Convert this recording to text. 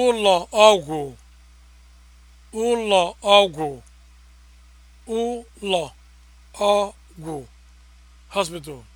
ụlọ ọgwụ ụlọ ọgwụ ụlọ ọgwụ hospital